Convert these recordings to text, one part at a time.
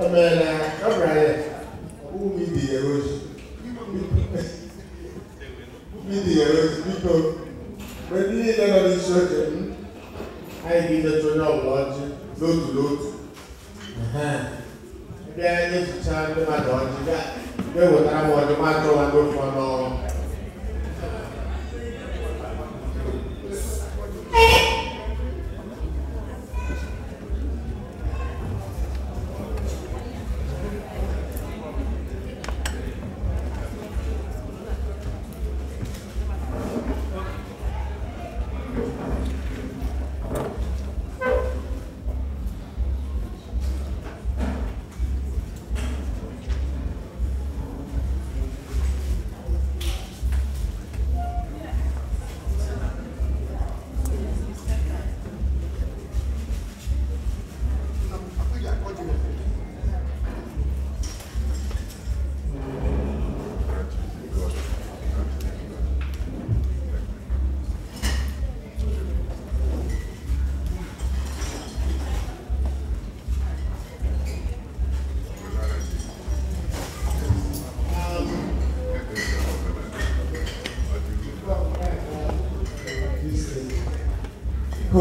Amela, Abraham, who made the erosion? Made the erosion because when you need another church, I give the children of God, load to load. Ẹgbẹ́ ẹni tuntun ẹni máa dọ̀ ọ́ jíjá, ẹgbẹ́ ìwòtá máa ọdún máa tọ́ wa ló fọ́ náà.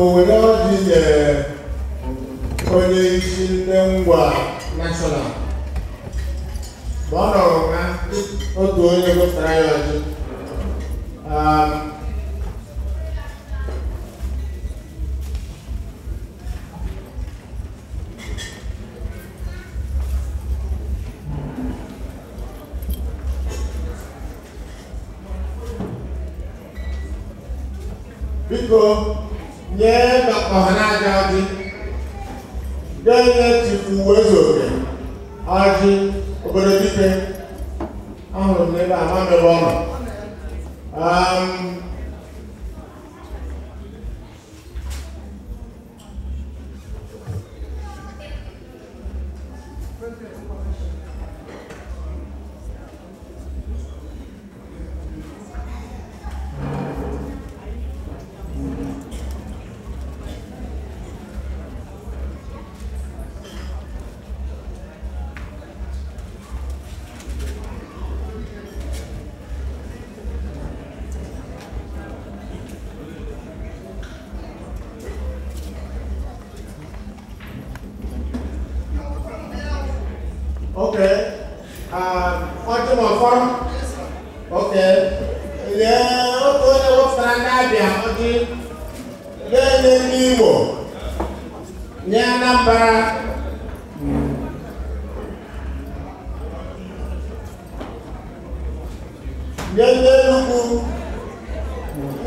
Oh. when Amen. Um,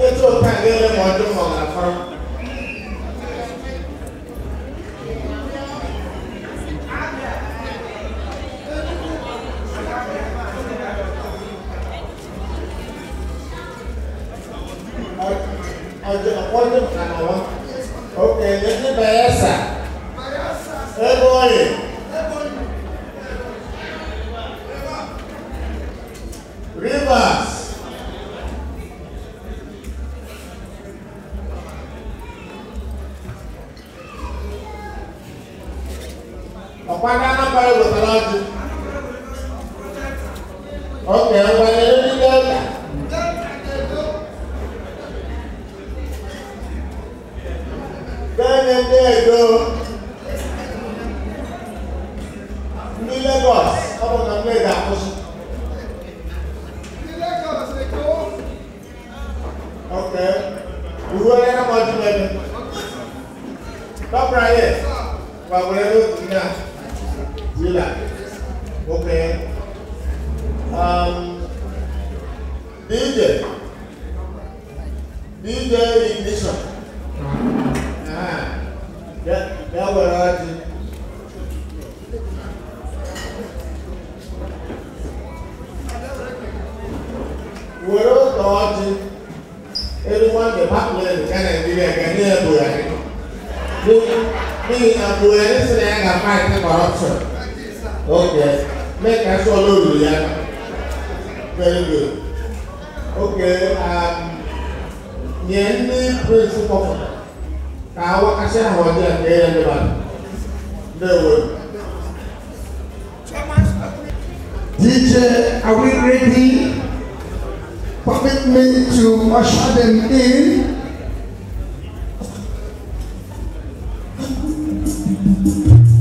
ètò pàǹgẹ́lẹ́ mọ̀ ọdún mọ̀ àfọ́n. ọjọ́ ọjọ́ kàná wọn òkè bayelsa ebe oyi. Rivers. Uwe ya na mọdụ mebe. Tọpụra ya, gbagwere n'otu na zila. Okay. Um, DJ. DJ ignition. Ah, ya, ya were ọjị. Were otu ọjị department kan na bi bɛ ka ne yɛ bonya ne mo mo yi na bonya ne sɛ yɛ ka fight ne corruption ok mɛ ka sɔ lóru ya very good ok um, nyɛ ne principal ka awɔ kasi ahɔdi a kɛyɛ ne ba ne wo. DJ, are we ready? permit me to usher them in. Thank you.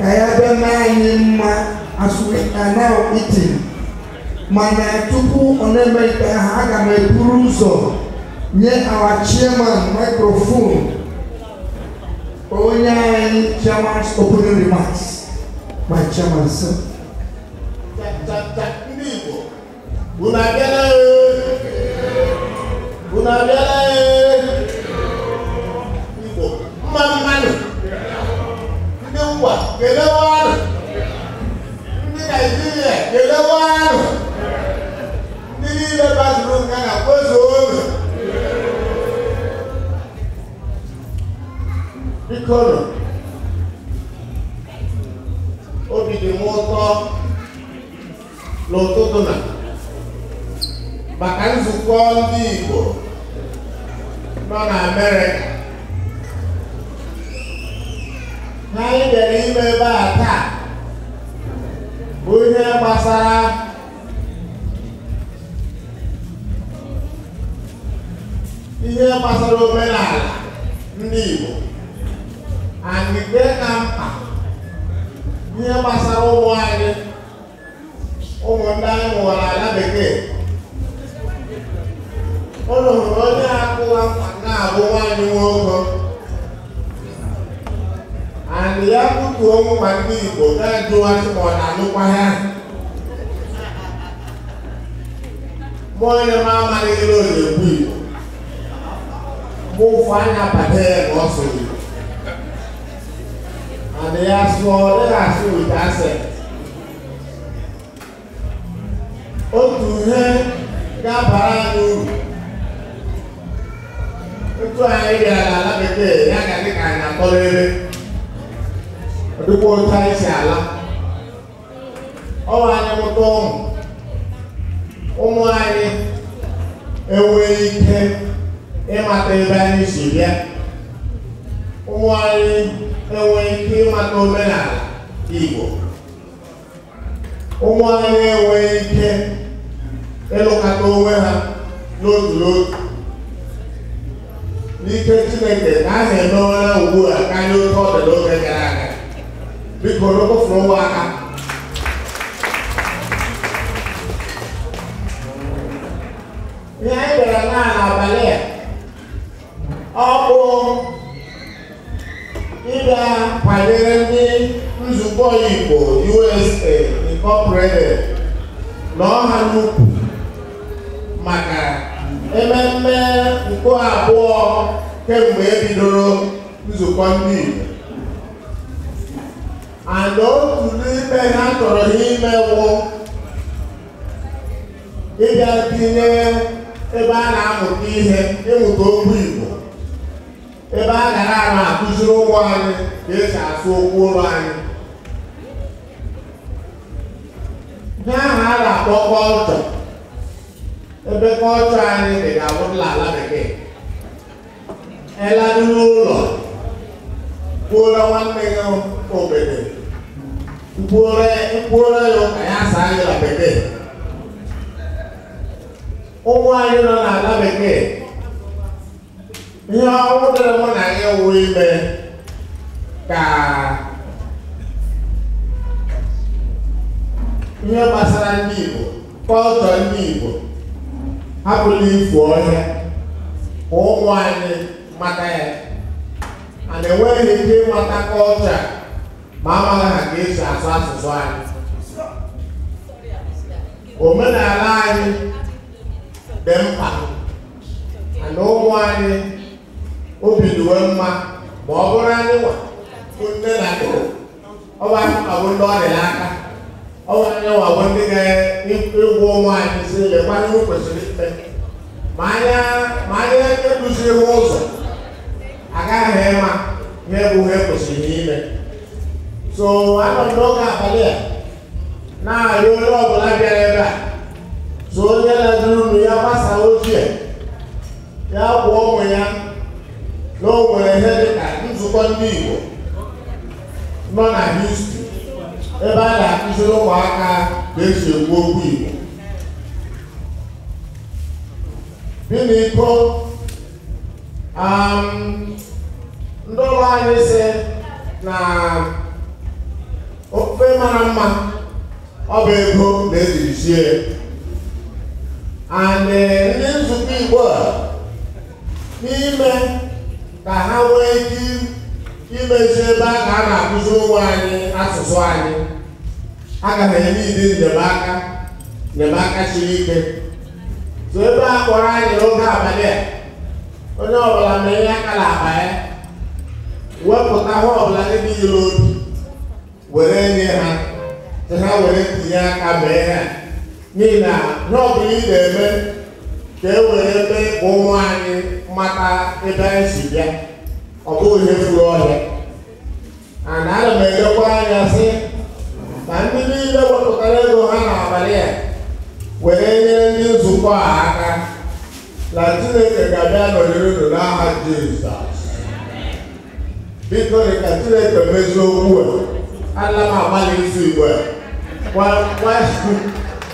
ka yɛabɛma anyị mma asụana itin mana tupu ọ na-emeghịte ha aga m eburu ụzọ nye our chairman microphone onye anyị chairman's opening remarks my chairman sir. ndị Igbo unu abịala ee eh. unu abịala ee eh. Kelewan ndị Naijiria kelewan ndị niile gbazuru nga na kpozuo oge bikoro obi dị m ụtọ n'ụtụtụ na maka nzukọ ndị Igbo nọ na Amerịka na anyị bịara ime ebe a taa bụ ihe gbasara ihe gbasara omenala ndị Igbo anyị dị na mkpa ihe gbasara ụmụ anyị ụmụ ndị anyị mụwara ala bekee ụlọ hụrụ onye akụwa na-abụ nwaanyị nwoke and ya butu ọnwụ ma ndị Igbo na-ajụwasị ma ọ na-alụkwa ya mụ onye m amaghị ihe ọ na-ekwu Igbo mụ ụfụ anya bata ya na ọ sụrụ Igbo and ya sụọ ọ dịghị asụ wit asent otu ihe ga anyị uru otu anyị bịara n'ala bekee ya ga dị ka anyị akpọrọ ere ɔde bɔ ɔtaa ɛhyɛ ala ɔwɔ anyi mɔtɔ ɔmo anyi ewe ike ịmata ebe anyị si bịa ụmụ anyị enwe ike ịmata omenala igbo ụmụ anyị enwe ike ịlụkata onwe ha n'otu n'otu n'ike chineke ka a na-emewara ugbu a karịa oke ọ dị n'oge mekɔrɔ kɔforɔ wɔ aka nyɛ dɔrɔ naa abalɛ ɔkò ịga kwadere ndị nzukọ igbo usa incorporated na ọha n'ukwu maka ememme nke abụọ kemgbe ebidoro nzukọ ndị igbo and otu n'ime ha chọrọ ha imenwụ ịbịa tinye ebe a na-amụta ihe ịmụta okwu Igbo ebe a gara ara akụziri ụmụ anyị ka esi asụ okwu ụlọ anyị ihe ahụ a na-akpọ kọlchọ ebe kọlchọ anyị dị ga-abụrụla ala bekee eladị n'ụlọ kwuola nwanne gị obere mkpụrụreyo e, asa anyị na bekee ụmụ anyị nọ n'ala bekee ihe ọrụ dịrị mụ na gị wụ ime ka ihe gbasara ndị Igbo kọltọ ndị Igbo hapụla ifu ọhịa ụmụ anyị mata ya a na-enweghị ike ịmata kọltọ maama na ka esi asa asụsụ anyị omenala anyị dị mkpa na ụmụ anyị obi dịwe mma ma ọ bụrụ anyị nwa bụ nne na nne ọ bụ anyị nwa bụ ndị ọ dị n'aka ọ bụ anyị nwa bụ ndị ga-egwu ụmụ anyị si lekwa ihe kwesịrị ime ma anya ma anya ekuziri ụzọ agaghị ịma ihe bụ ihe kwesịrị ime So anọ n'oge abalị a na-arị onye ọbụla bịara ebe a so onye na-eduru unu ya gbasa ochie ya kwụọ ụmụ ya na o nwere ihe dịka nzukọ ndị Igbo nọ na histri ebe a na-akụziri ụmụaka ka esi ekwu okwu Igbo biniko ndị ụlọ anyị si na ofe mara mma ọ bụ ego na-ejiri sie and ndị nzukọ igbo a n'ime ka ha nwee ike imezi ebe a ka a na-akụzi ụmụ anyị asụsụ anyị aga m enye ndị nnyemaka nnyemaka siri ike so ebe a kpọrọ anyị n'oge abalị a onye ọbụla na-enye aka n'akpa ya wepụta ha ọbụla dị n'ile obi were nye ha ha were ntinye aka mee ha n'ihi na n'ọbụ ị na-eme ka e were ebe ụmụ anyị mata ebe anyị si bịa ọ bụghị ihe furu ọhịa ana ana m elekwa anya sị na ndị niile wepụtara ego ha n'abalị a were nyere ndị nzukọ a aka na chineke ga-abịa nọnyere unu n'aha jizọs biko dị ka chineke mezie okwu a alama amali nso igbo a wa wa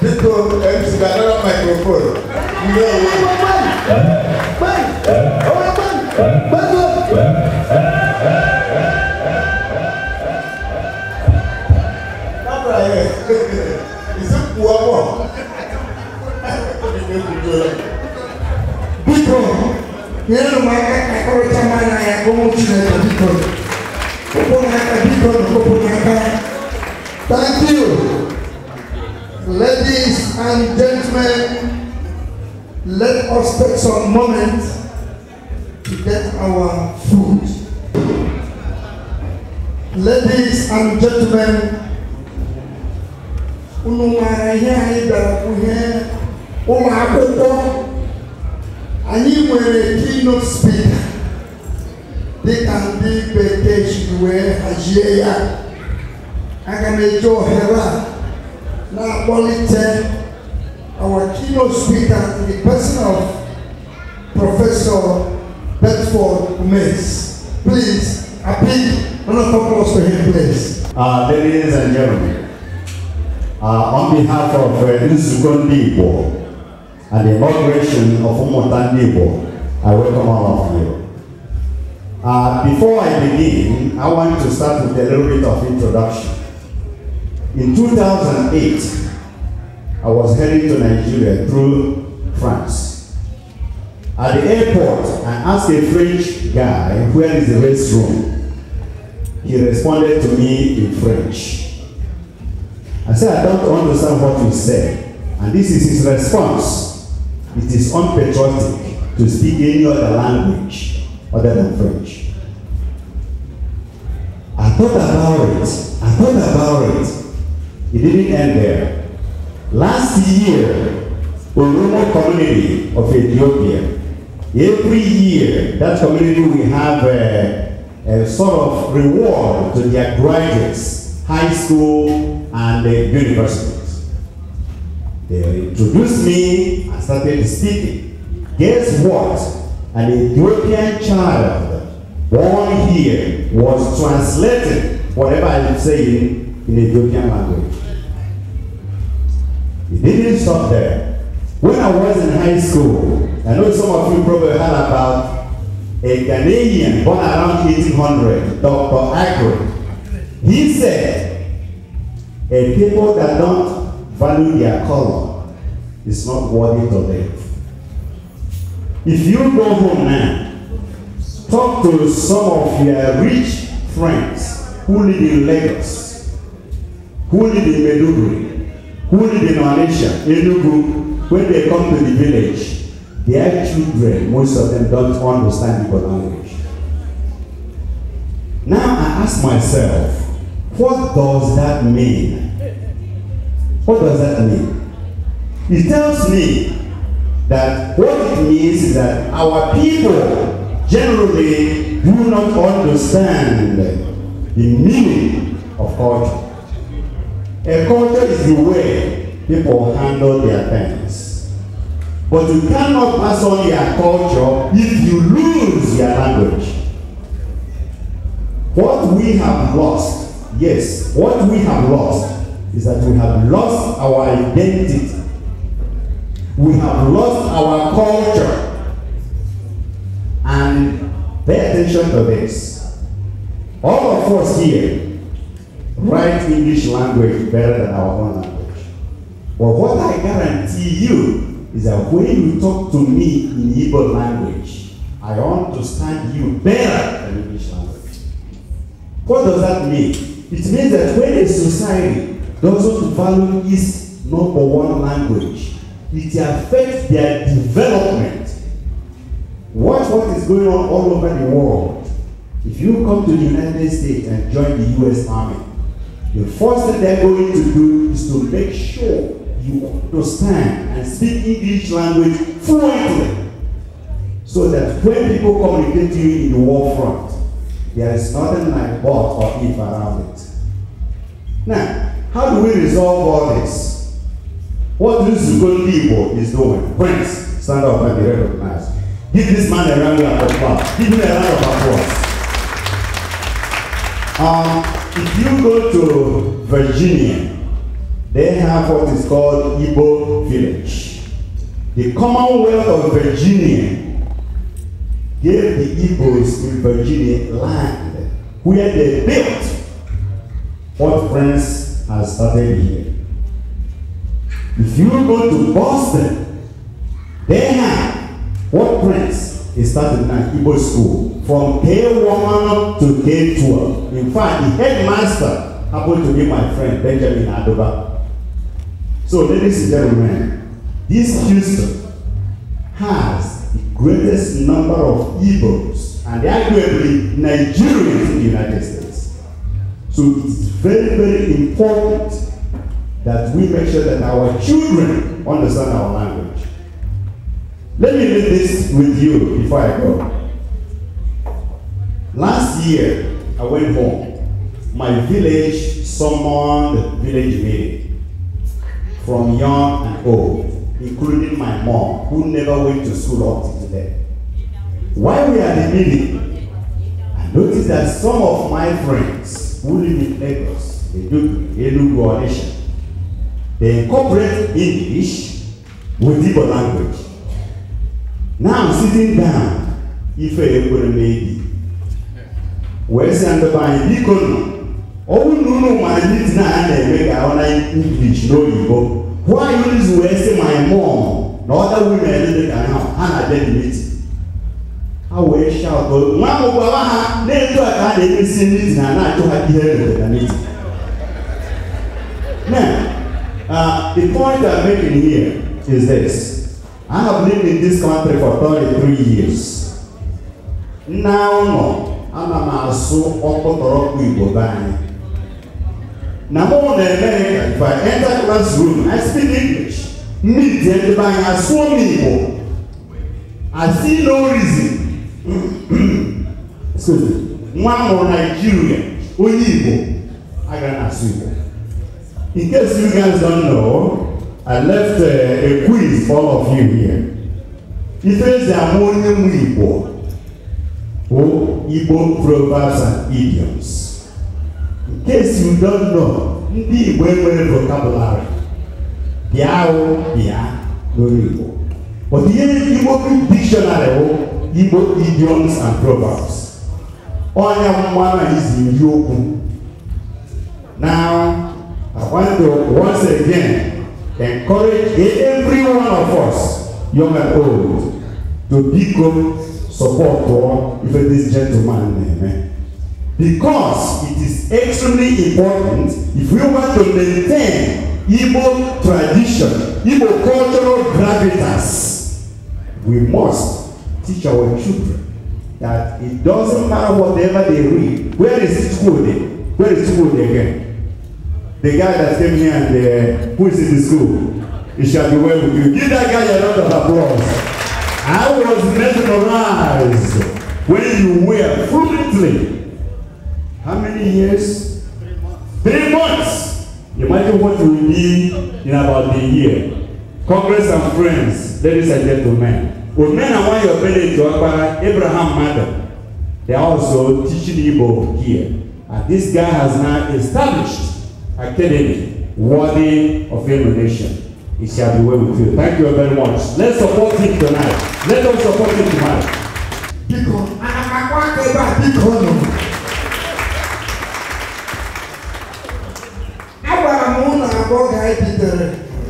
biko mc gadara microphone ndị owo. Biko, nyere m aka ka kọrịta m anya ya ka ụmụ Chineke biko. us take some moment to get our food. Ladies and gentlemen, uh, ladies and gentlemen, uh, on behalf of uh, Nsuko Ndibo and the inauguration of Umota Ndibo, I welcome all of you. Uh, before I begin, I want to start with a little bit of introduction. In 2008, I was heading to Nigeria through France. At the airport, I asked a French guy, where is the restroom? he responded to me in French. I said, I don't understand what you said. And this is his response. It is unpatriotic to speak any other language other than French. I thought about it. I thought about it. It didn't end there. Last year, a Oromo community of Ethiopia, every year, that community we have uh, a sort of reward to their graduates, high school and the universities. They introduced me and started speaking. Guess what? An Ethiopian child born here was translating whatever I'm saying in Ethiopian language. It didn't stop there. When I was in high school, I know some of you probably heard about a Ghanaian born around 1800, Dr. Agro. He said, a people that don't value their color is not worthy to live. If you go home now, talk to some of your rich friends who live in Lagos, who live in Meduguri, who live in Malaysia, Enugu, when they come to the village, Their children, most of them don't understand your language. Now I ask myself, what does that mean? What does that mean? It tells me that what it means is that our people generally do not understand the meaning of culture. A culture is the way people handle their things. But you cannot pass on your culture if you lose your language. What we have lost, yes, what we have lost is that we have lost our identity. We have lost our culture. And pay attention to this. All of us here write English language better than our own language. But what I guarantee you is that when you talk to me in Hebrew language, I understand you better than English language. What does that mean? It means that when a society doesn't value its number one language, it affects their development. Watch what is going on all over the world. If you come to the United States and join the US Army, the first thing they're going to do is to make sure you understand and speak English language fluently. So that when people communicate to you in the war front, there is nothing like but or if around it. Now, how do we resolve all this? What this good people is doing? Friends, stand up and be recognized. Give this man a round of applause. Give him a round of applause. Um, if you go to Virginia, they have what is called Igbo village. The Commonwealth of Virginia gave the Igbos in Virginia land where they built what France has started here. If you go to Boston, they have what France is starting now, Igbo school, from K1 to K12. In fact, the headmaster happened to be my friend Benjamin Adoba. So, ladies and gentlemen, this Houston has the greatest number of Igbos and arguably Nigerians in the United States. So, it's very, very important that we make sure that our children understand our language. Let me read this with you before I go. Last year, I went home. My village summoned village meeting from young and old, including my mom, who never went to school up to today. While we are in the meeting, I noticed that some of my friends who live in Lagos, they do Enugu or Nation, they incorporate English with Igbo language. Now I'm sitting down, If ekwere maybe. Wee sị ndị be anyị, ọwụ na unu ma ndị na a na-eme ka ọ na English n'oyibo why use wee sị my mom na ọda women dị ka ha ha na dedimiti ha wee shout nwa ahụ gwawa ha na-eto a ka ha na-emesi ndị na na-achụ ha ihe rededaniti Now, uh, the point I'm making here is this. I have lived in this country for 33 years. Now, no, I'm a maso ọkpọtọrọkpọ Igbo banyere na mo na America if I enter classroom I speak English me the end by I saw me Igbo I see no reason excuse me nwa m bụ Nigeria onye Igbo aga na asụ Igbo in case you guys don't know I left uh, a quiz for all of you here ifezi ama onye nwe Igbo bụ Igbo proverbs and idioms case you don't know ndị igbo enwere vocabulary bịa ahụ bịa n'olu igbo but ihe igbo dictionary bụ igbo idioms and proverbs ọnya mmanụ izi iri okwu now i want to once again encourage every one of us young and old to biko support ife this gentleman na-eme eh? because it is extremely important if we want to maintain Igbo tradition, Igbo cultural gravitas, we must teach our children that it doesn't matter whatever they read. Where is school then? Where is school again? The guy that came here and uh, who is in the school, he shall be well with you. Give that guy a round of applause. I was mesmerized when you were fluently How many years? Three months. Three months. Imagine what will be in about a year. Congress and friends, ladies and gentlemen. With men and one your village, Abraham Madam, they are also teaching Igbo here. And this guy has now established academy worthy of emulation. It shall be well with you. Thank you very much. Let's support him tonight. Let us support him tonight. Because am a one rara bitere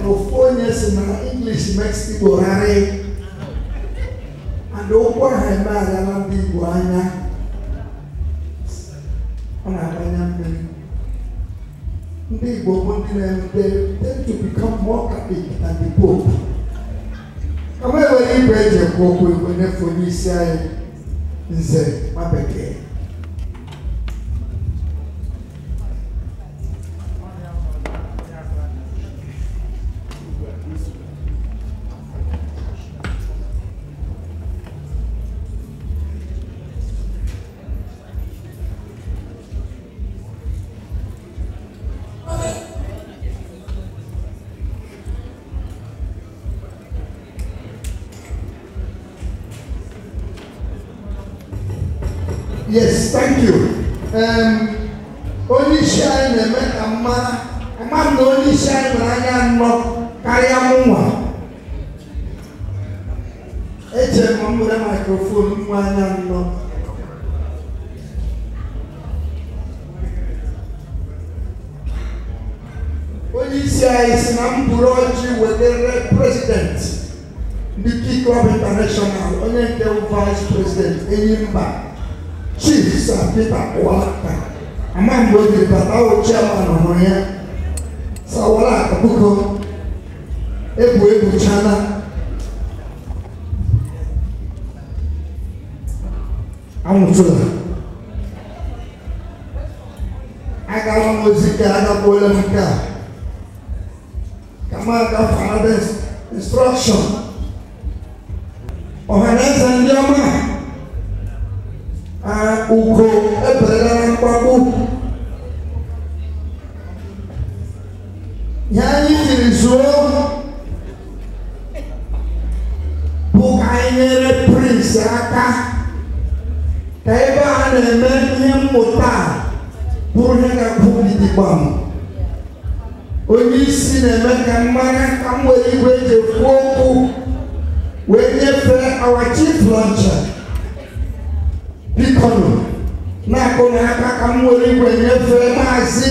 na ofu onye si na english mex igbo rari and ụkwụ aha eme agala ndị igbo anya ọ na-agbanye mmiri to become more capable than the pope Kamu enwere beri eji ekwu okwu igwe ini? onye isi anyị nze ma Yes, thank you. Um, only sharing awo chairman ọmọ yẹn sawọlá àkókò ebu ebu chana amutula aga wọn ozi ka aga bọọlụ m ka kama aga fana instruction ọhaneze ndị ọma a ugo. nso bụ ka anyị nyere prins aka ka ebe a na-eme ihe mmụta bụrụ ihe ga-abụ gidigbam onye isi na-eme ka mmanya ka m nwere igwe eji ekwu okwu wee nyefee our chief launcher bikonu na-akụ na ka m nwere igwe nyefee maazị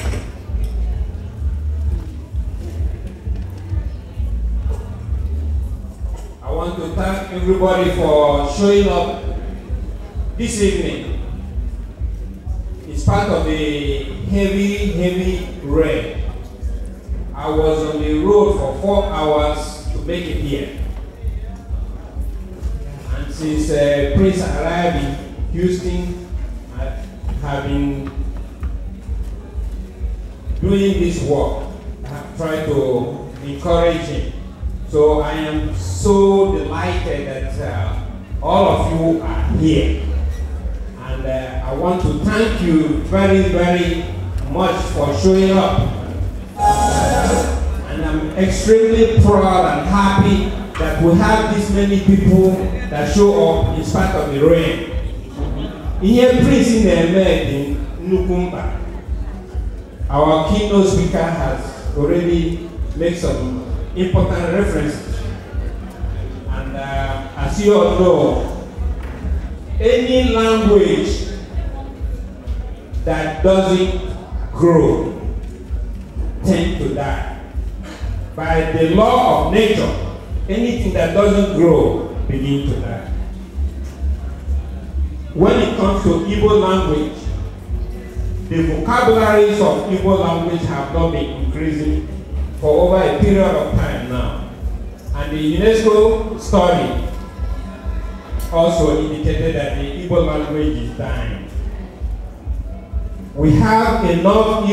everybody for showing up this evening. It's part of a heavy, heavy rain. I was on the road for four hours to make it here. And since uh, Prince arrived in Houston, I have been doing this work. I have tried to encourage him so I am so delighted that uh, all of you are here. And uh, I want to thank you very, very much for showing up. And I'm extremely proud and happy that we have this many people that show up in spite of the rain. Here, prisi in eme dị nnukwu mkpa. Our keynote speaker has already made some important references. And uh, as you all know, any language that doesn't grow tend to die. By the law of nature, anything that doesn't grow begin to die. When it comes to Igbo language, the vocabularies of Igbo language have not been increasing for over a period of time now. And the UNESCO study also indicated that the Igbo language is dying. We have enough